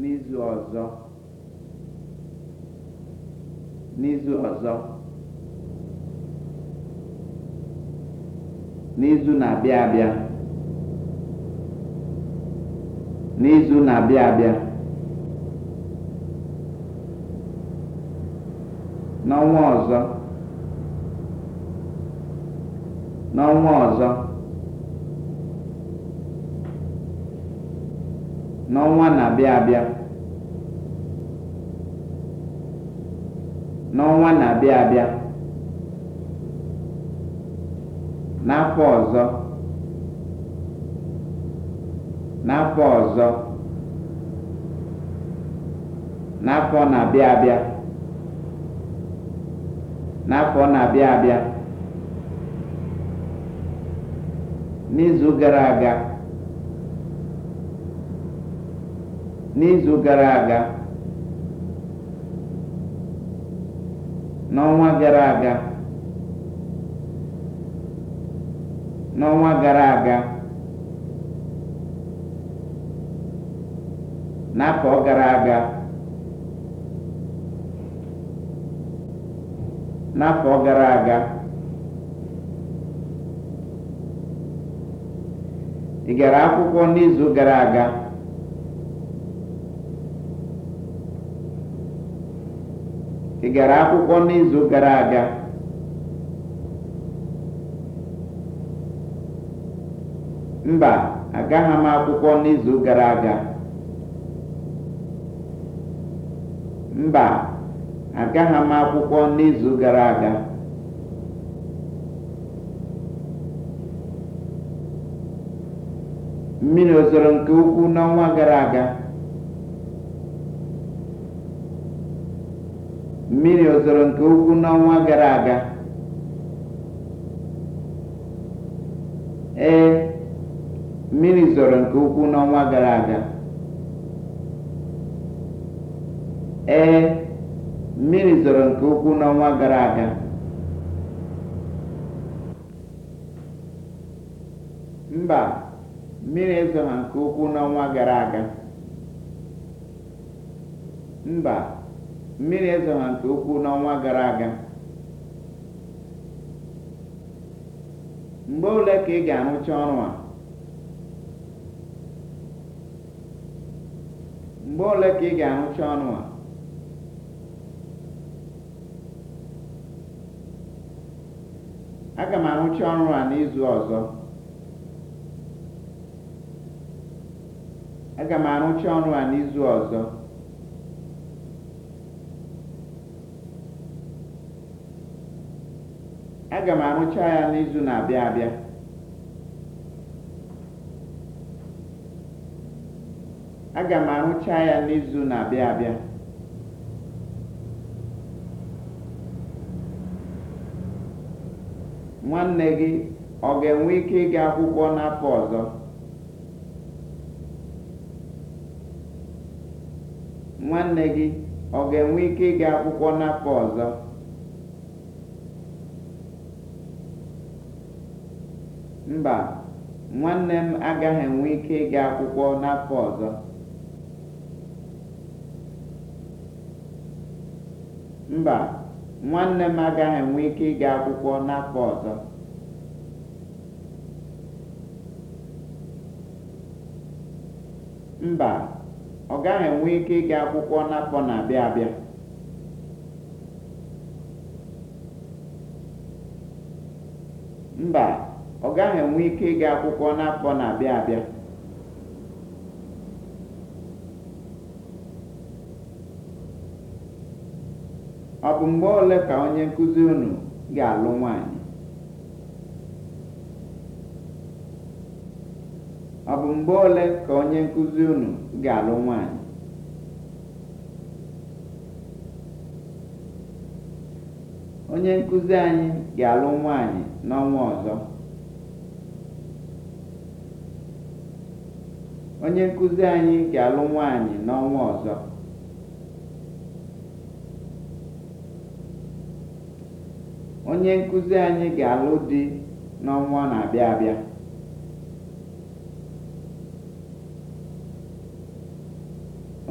n'izu ọzọ n'izu ọzọ n'izu na-abịa abịa n'izu na n'ọnwa ọzọ n'ọnwa na-abịa abịa n'ọnwa na-abịa abịa n'afọ ọzọ n'afọ ọzọ na-abịa abịa n'afọ n'izu gara aga n'izu gara aga n'ọnwa gara aga n'ọnwa gara aga n'afọ gara aga n'afọ gara aga ị gara akwụkwọ n'izu gara aga ị gara akwụkwọ n'izu gara aga mba agaghị m akwụkwọ n'izu gara aga mba agaghị m akwụkwọ n'izu gara aga mmiri ozoro nke ukwuu n'ọnwa gara aga mmiri ozoro nke ukwuu n'ọnwa gara aga ee mmiri zoro nke ukwuu n'ọnwa gara aga ee mmiri zoro nke ukwuu n'ọnwa gara aga mba mmiri ezoghị nke ukwuu n'ọnwa gara aga mba mmiri ezora nke ukwuu n'ọnwa gara aga mgbe ole ka ị ga-arụcha ọrụ a mgbe ole ka ị ga-arụcha ọrụ a aga m arụcha ọrụ a n'izu ọzọ aga m arụcha ọrụ a n'izu ọzọ aga m arụcha ya n'izu na-abịa abịa nwanne gị ọ ga-enwe ike ịga akwụkwọ n'afọ ọzọ ga-enwe ike ịga akwụkwọ n'afọ ọzọ mba nwanne m agaghị enwe ike ịga akwụkwọ n'afọ ọzọ mba nwanne m agaghị enwe ike ịga akwụkwọ n'afọ ọzọ mba ọ gaghị enwe ike ịga akwụkwọ n'afọ na-abịa abịa mba ọ gaghị enwe ike ịga akwụkwọ n'afọ na-abịa abịa ọ bụ mgbe ole ka onye nkụzi unu ga-alụ nwaanyị ọ bụ mgbe ole ka onye nkụzi unu ga-alụ nwaanyị onye nkụzi anyị ga-alụ nwaanyị n'ọnwa ọzọ onye nkụzi anyị ga-alụ nwaanyị n'ọnwa ọzọ onye nkụzi anyị ga-alụ di n'ọnwa na-abịa abịa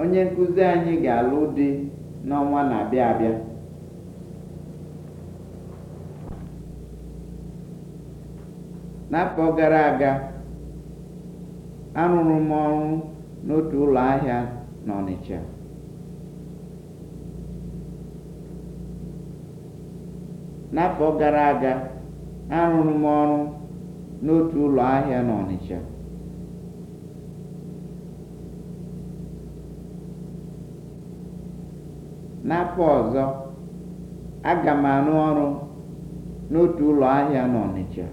onye nkụzi anyị ga-alụ di n'ọnwa na-abịa abịa n'afọ gara aga arụrụ m ọrụ n'otu ụlọ ahịa n'Ọnịcha n'afọ gara aga arụrụ m ọrụ n'otu ụlọ ahịa n'Ọnịcha n'afọ ọzọ aga m arụ ọrụ n'otu ụlọ ahịa n'Ọnịcha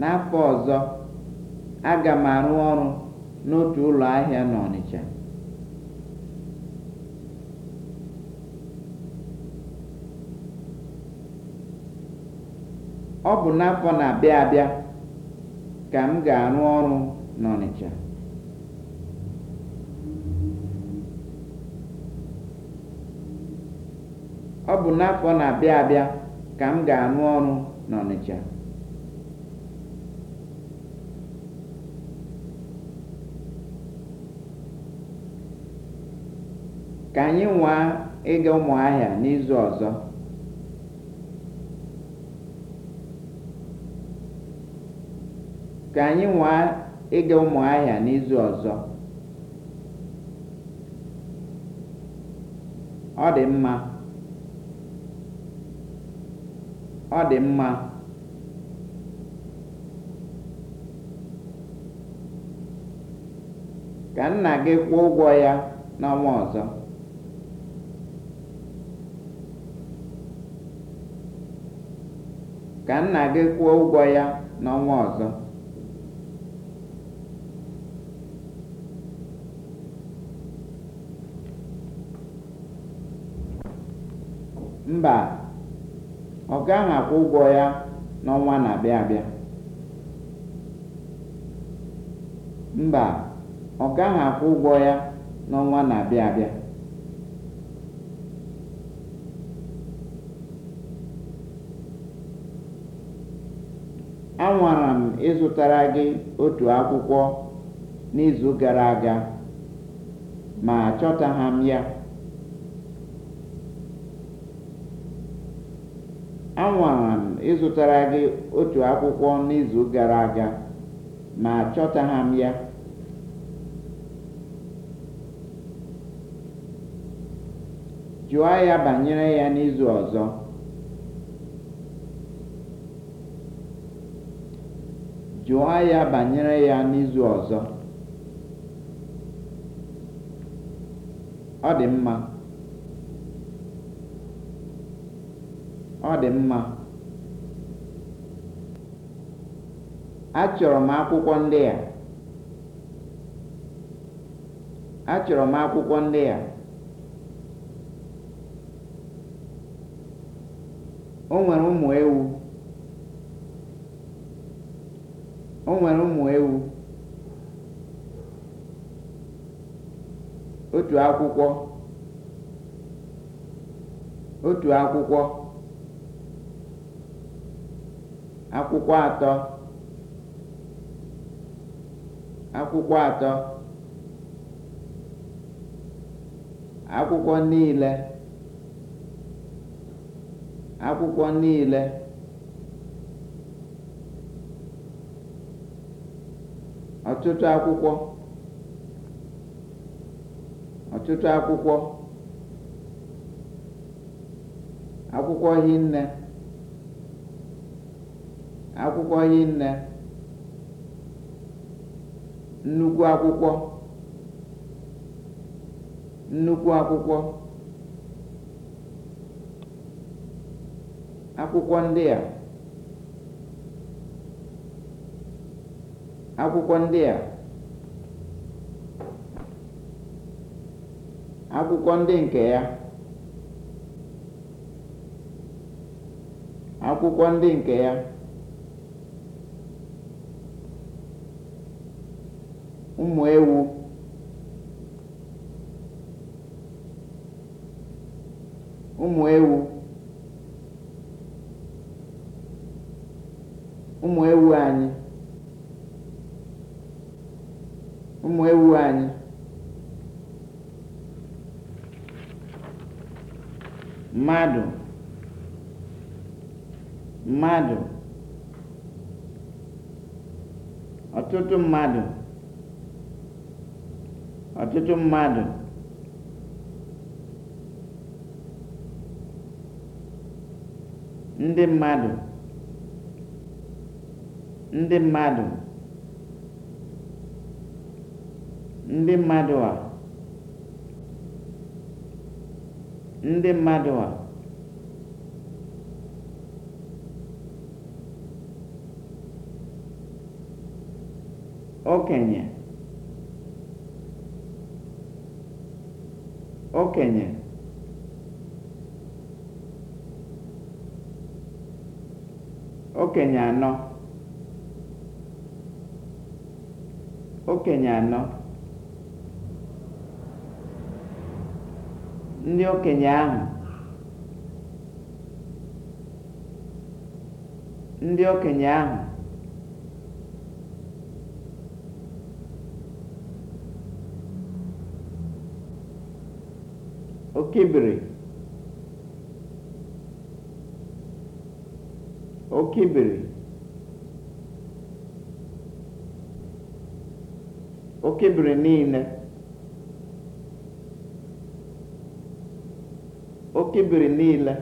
N'afọ ọzọ, aga m arụ ọrụ n'otu ụlọ ahịa n'Ọnịcha. Ọ bụ n'afọ na-abịa abịa ka m ga-arụ ọrụ n'Ọnịcha. Ọ ka anyị nwaa ịga ụmụ n'izu ọzọ n'izu ọzọ ọ dị mma ọ dị mma ka nna gị kwụọ ụgwọ ya n'ọnwa ọzọ ka nna gị kwụọ ụgwọ ya n'ọnwa ọzọ mba ọ gaghị akwụ ụgwọ ya n'ọnwa na-abịa abịa mba ọ gaghị akwụ ụgwọ ya n'ọnwa na-abịa abịa ịzụtara gị otu akwụkwọ n'izu gara aga ma ha anwara m ịzụtara gị otu akwụkwọ n'izu gara aga ma achọtaghị m ya jụọ ya banyere ya n'izu ọzọ Jụọ ya banyere ya n'izu ọzọ. Ọ dị mma. Ọ dị mma. Achọrọ m akwụkwọ ndị a. Achọrọ m akwụkwọ ndị a. O nwere ụmụ ewu. o nwere ụmụ ewu otu akwụkwọ otu akwụkwọ akwụkwọ atọ akwụkwọ atọ akwụkwọ niile akwụkwọ niile ọtụtụ akwụkwọ ọtụtụ akwụkwọ akwụkwọ hinne akwụkwọ hinne nnukwu akwụkwọ nnukwu akwụkwọ akwụkwọ ndị a akwụkwọ ndị a akwụkwọ ndị nke ya akwụkwọ ndị nke ya ụmụ ewu ụmụ ewu ụmụ ewu anyị ụmụ ewu anyị mmadụ mmadụ ọtụtụ mmadụ ọtụtụ mmadụ ndị mmadụ ndị mmadụ ndị mmadụ a ndị mmadụ a okenye okenye okenye anọ okenye anọ ndị okenye ahụ ndị okenye ahụ okibiri okibiri okibiri niile oke biri niile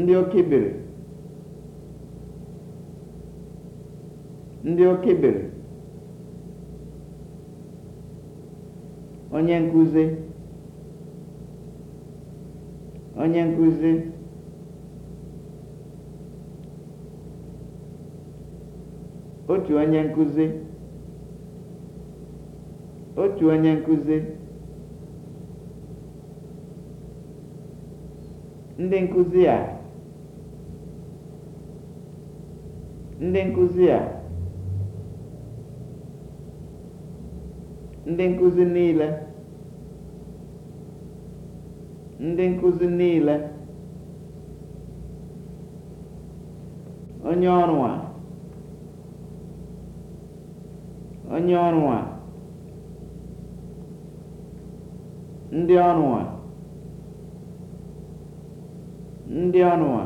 ndị oké biri ndị oké biri onye nkuzi, onye nkuzi, otu onye nkuzi. otu onye nkuzi, ndị nkuzi a ndị nkuzi a ndị nkuzi niile ndị nkuzi niile onye ọrụ a onye ọrụ a ndị ọnụnwa ndị ọnụnwa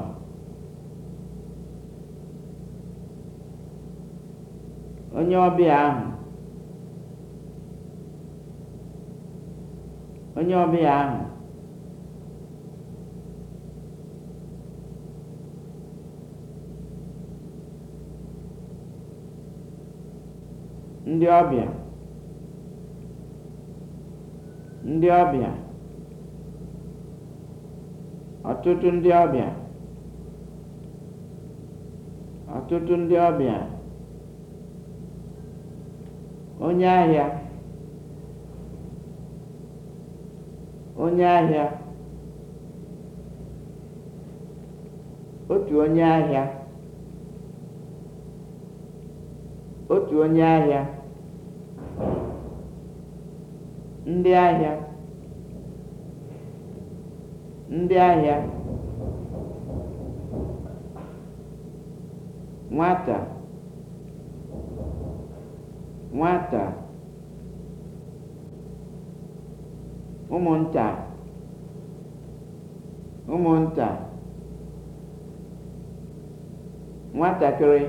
onye ọbịa ahụ onye ọbịa ahụ ndị ọbịa ndị ọbịa ọtụtụ ndị ọbịa ọtụtụ ndị ọbịa onye ahịa onye ahịa otu onye ahịa otu onye ahịa ndị ahịa ndị ahịa nwata nwata ụmụnta ụmụnta nwatakịrị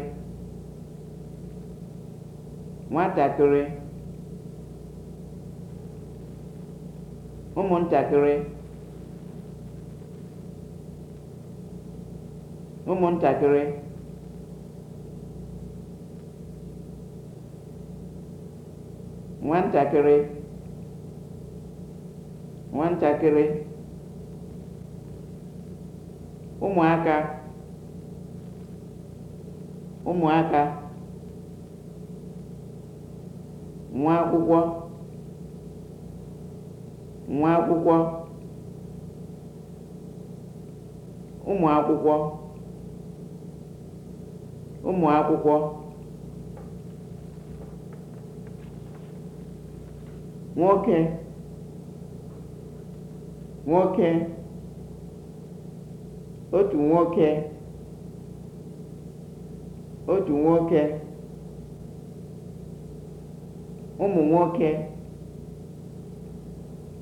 nwatakịrị ụmụntakịrị ụmụntakịrị nwantakịrị nwantakịrị ụmụaka ụmụaka nwa akwụkwọ nwa akwụkwọ ụmụ akwụkwọ ụmụ akwụkwọ nwoke nwoke otu nwoke otu nwoke ụmụ nwoke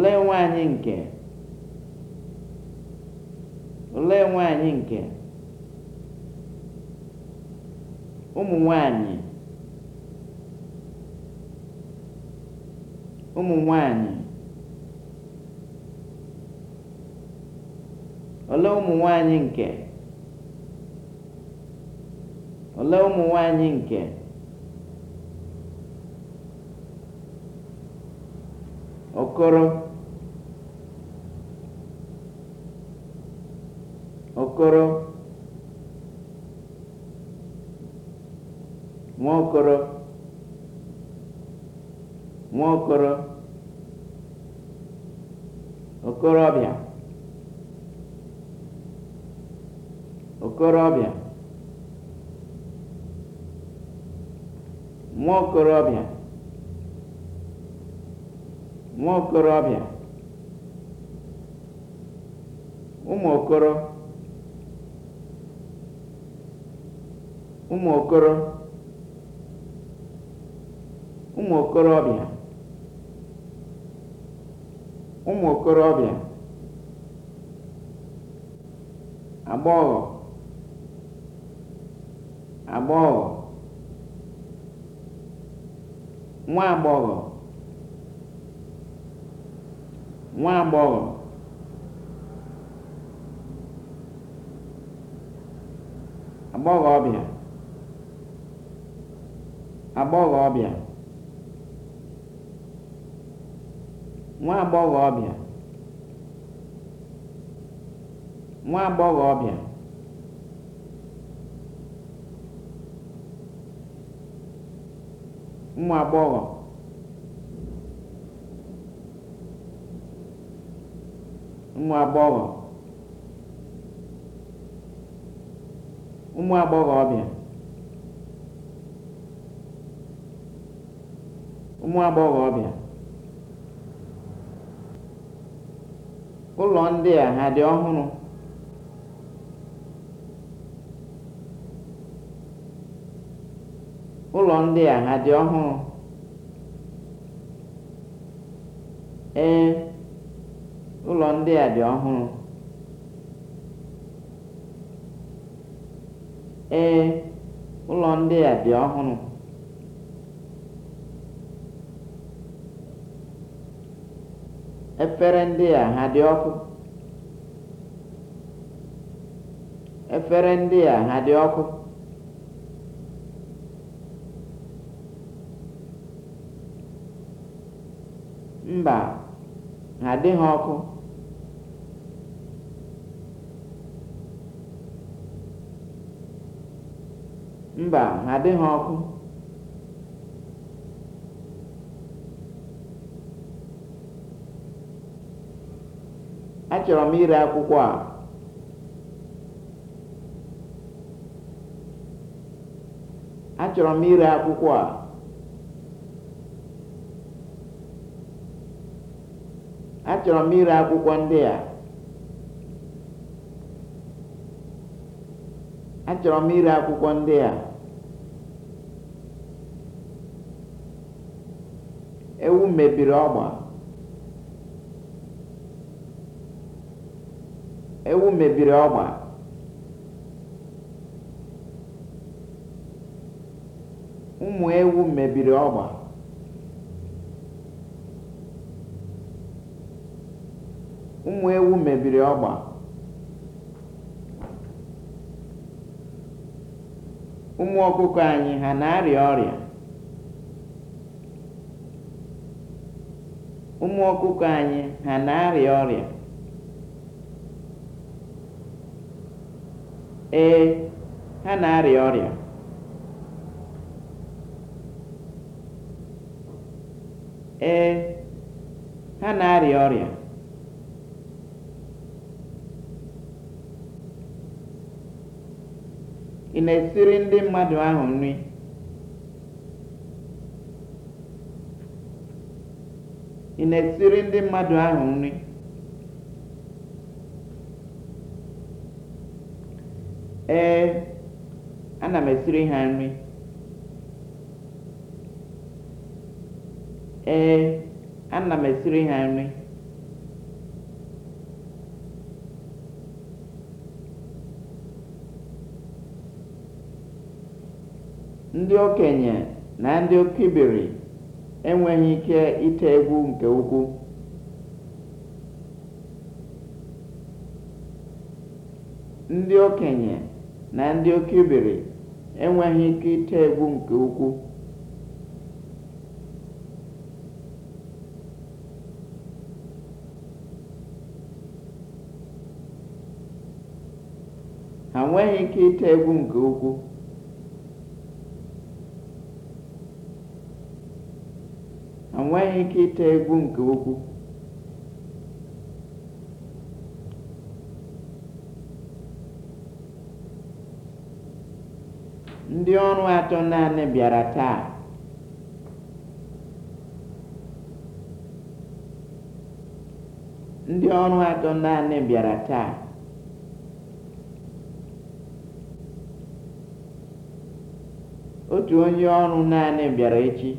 olee nwe anyị nke olee nwe anyị nke ụmụ nwanyị ụmụ nwanyị olee ụmụ nwanyị nke olee ụmụ nwanyị nke okoro Nwokoro Nwokoro okoro okorobịa okorobịa nwokorobịa nwokorobịa ụmụ okoro ụmụ okoro ụmụ okorobịa ụmụ okorobịa agbọghọ agbọghọ nwa agbọghọ nwa agbọghọ agbọghọbịa agbọghọbịa nwa agbọghọbịa nwa agbọghọbịa ụmụ agbọghọ ụmụ agbọghọ ụmụ agbọghọbịa nwa agbọghọbịa ụlọ ndị a ha dị ọhụrụ ụlọ ndị a ha dị ọhụrụ ee ụlọ ndị a dị ọhụrụ ee ụlọ ndị a dị ọhụrụ efere ndị a ha dị ọkụ efere ndị a ha dị ọkụ mba ha adịghị ọkụ mba ha adịghị ọkụ achọrọ m ire akwụkwọ a achọrọ m ire akwụkwọ a achọrọ m ire akwụkwọ ndị a achọrọ m ire akwụkwọ ndị a ewu mebiri ọgba ewu mebiri ọgba ụmụ ewu mebiri ọgba ụmụ ewu anyị ha na-arịa ụmụ ọkụkọ anyị ha na-arịa ọrịa ee ha na-arịa ọrịa ee ha na-arịa ọrịa ị na-esiri ndị mmadụ ahụ nri ị na-esiri ndị mmadụ ahụ nri ee ana m esiri ha nri ee ana m esiri ha nri ndị okenye na ndị okibiri enweghị ike ite egwu nke ukwuu ndị okenye na ndị oke iberi enweghị ike ite egwu nke ukwuu ha nweghị ike ite egwu nke ukwuu ha nweghị ike ite egwu nke ukwuu ndị ọrụ atọ naanị bịara taa ndị ọrụ atọ naanị bịara taa otu onye ọrụ naanị bịara echi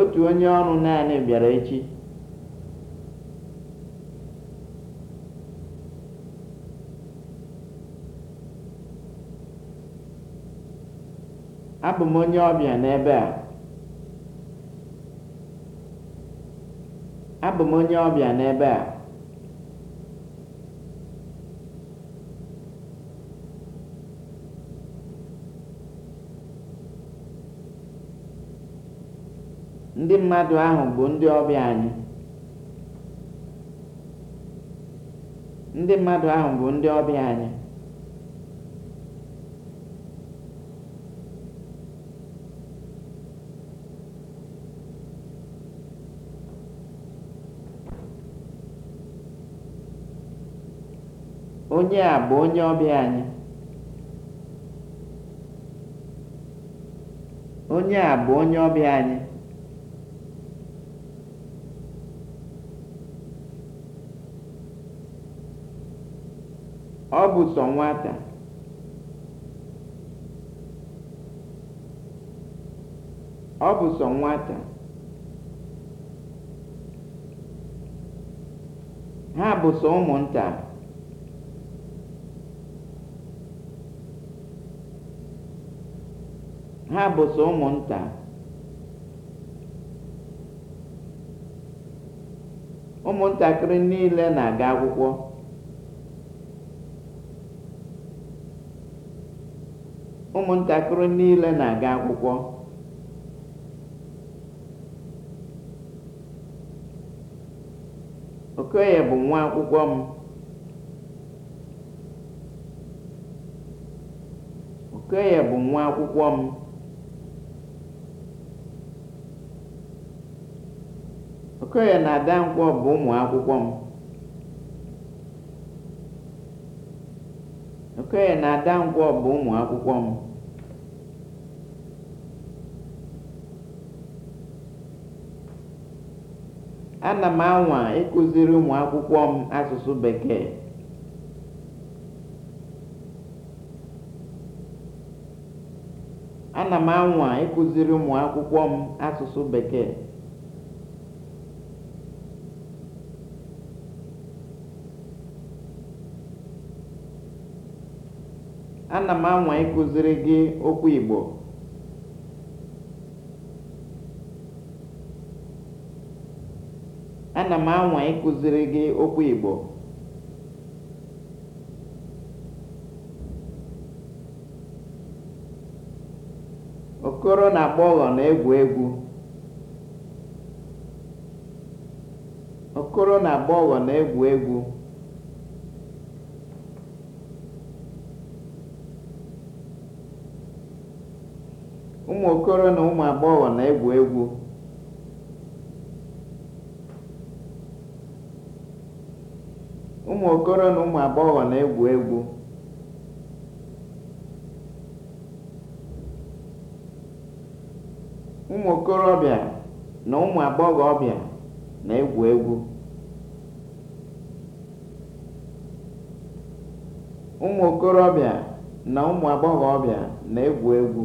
otu onye ọrụ naanị bịara echi abụ m onye ọbịa n'ebe a ndị mmadụ ahụ bụ ndị ọbịa anyị Onye a bụ onye ọbịa anyị. Onye a bụ onye ọbịa anyị. Ọ bụ sọ nwata. Ọ bụ sọ nwata. Ha bụ sọ ụmụnta. ha bụ sọ ụmụnta ụmụntakịrị niile na-aga akwụkwọ ụmụntakịrị niile na-aga akwụkwọ okoye bụ nwa akwụkwọ m okoye bụ nwa akwụkwọ m Okoye na Adankwọ bụ ụmụ m. na Adankwọ bụ ụmụ akwụkwọ m. Ana m anwa ịkụziri ụmụ akwụkwọ Ana m anwa ịkụziri ụmụ akwụkwọ m asụsụ Bekee. ana m anwa ịkụziri gị okwu Igbo Okoro na agbọghọ na-egwu na-egwu egwu ụmụ okoro na ụmụ agbọghọ na-egwu egwu na ụmụ okorobịa na ụmụ agbọghọbịa na-egwu egwu